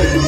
good.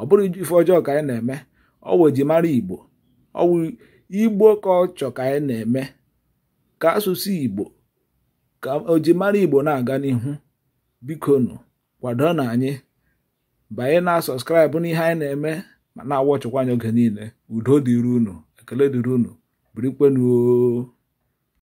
ọ bụrụ ife ọjọọ ka anyị na-eme ọwụ ejimara igbo ọwụ igbo ka ọ chọ ka anyị na-eme ka asụsụ igbo ka ojimara igbo na-aga n'ihu bikonu kwado na anyị banye na sọskraịbụ n'ihe anyị na-eme ma na ọchọkwa anyị oge niile udo dịrị unu ekele dịrị unu